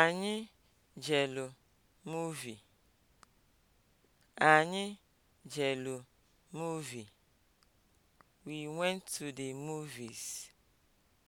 Anyị jelu muuvi. Anyị jelu muuvi. We went to the movies.